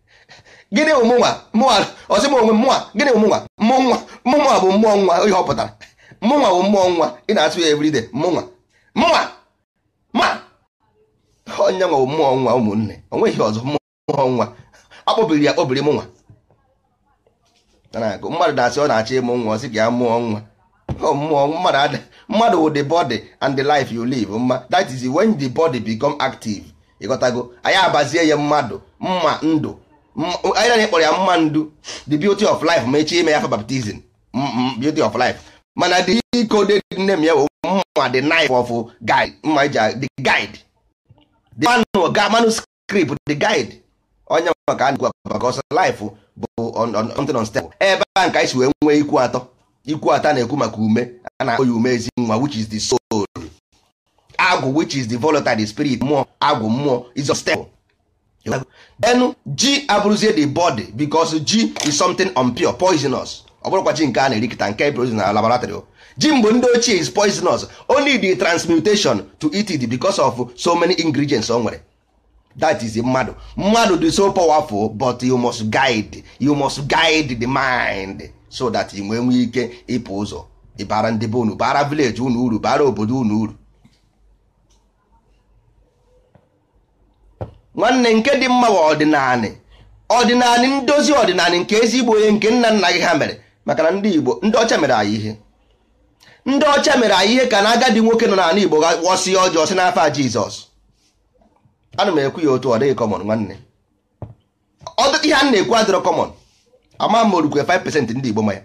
gịnị wụ mụnwa mụnwa ọsị m onwe mụnwa gịnị wụ mụnwa mụnwa mụnwa bụ mmụọ nwa ihe họpụtara pụtara mụnwa bụ mmụọ nwa ị na-asụ ya everyday mụnwa mụnwa ma onye nwa bụ mmụọ nwa ụmụnne o nweghị ọzọ mmụọ nwa ọ kpọbiri ya kpọbiri mụnwa mmadụ na-asị ọ na-achọ ịmụ nwa ọ sị gị ya mụọ nwa mmụọ mmadụ wụ the body and the life you live mma that is when the body become active ịghọtago anyị abazie ya mmadụ mma ndụ anyị na kpọrọ ya mma ndụ the beauty of life ma echi ime ya fa baptizim beauty of life mana the iko coded name ya mma the knife of guide mma the guide the manuscript the guide onye maka a na-ekwu maka ọsọ life bụ something unstable ebe a nke anyị wee nwee ikwu atọ ikwu atọ na-ekwu maka ume a na-akpọ ya ume ezi nwa which is the soul agwụ which is the volatile spirit mmụọ agwụ mmụọ is denu ji abụrụzie the body because ji is something unpure poisonous ọ bụrụkwa ji nke a na-erikịta nke produce na laboratory ji mgbe ndị ochie is poisonous only the transmutation to eat it because of so many ingredients o nwere that is mmadụ mmadụ dị so powerful but you must guide you must guide the mind so that ị nwee nwee ike ịpụ ụzọ ịbara ndị be unu bara village unu uru bara obodo unu uru nwanne nke dị mma wa ọdịnanị ọdịnanị ndozi ọdịnanị nke ezigbo onye nke nna nna gị ha mere maka na ndị Igbo ndị ọcha mere anyị ihe ndị ọcha mere anyị ihe ka na agadi nwoke nọ n'ala Igbo ghọsie ọjọọ si n'afa Jizọs ana m ekwu ya otu ọ dịghị kọmọn nwanne ọdụtụ ihe a na-ekwu adịrọ kọmọn ama m orukwe 5% ndị Igbo maya.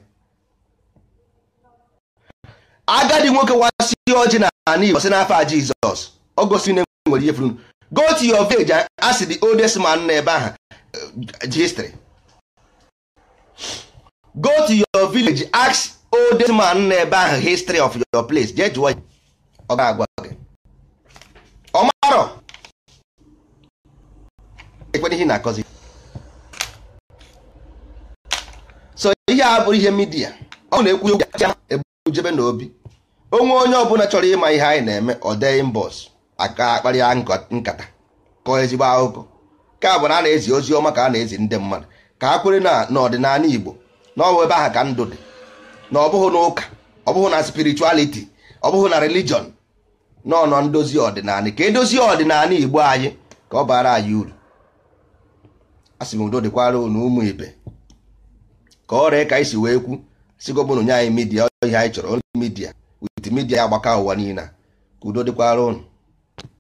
agadi nwoke wasị ọjị na ana Igbo si n'afọ a Jizọs ọ gosi na e nwere ihe furu go to your village a sị the oldest man n'ebe ahụ eh, history go to your village ask oldest man n'ebe ahụ history of your place jee jụọ ọ ga-agwa gị ọ marọ ekwena ihe na-akọzi so ihe a bụrụ ihe midia ọ na-ekwu okwu ya ebujebe obi. onwe onye ọbụla chọrọ ịma ihe anyị na-eme ọ dee mbọs aka akparịa nkata kọọ ezigbo akụkọ nke a bụ na a na-ezi ozi ọma ka a na-ezi ndị mmadụ ka a kwere n'ọdịnala Igbo na ọwụ ebe ahụ ka ndụ dị na ọ na ụka ọ bụghị na spirituality ọ na religion nọ nọ ndozi ọdịnala ka edozie ọdịnala Igbo anyị ka ọ bara anyị uru asị m udo dịkwara unu ụmụ ibe ka ọrịa ka anyị si wee kwu sigobụnụ nye anyị midia ihe anyị chọrọ midia wit midia ya agbaka ụwa niile ka udo dịkwara unu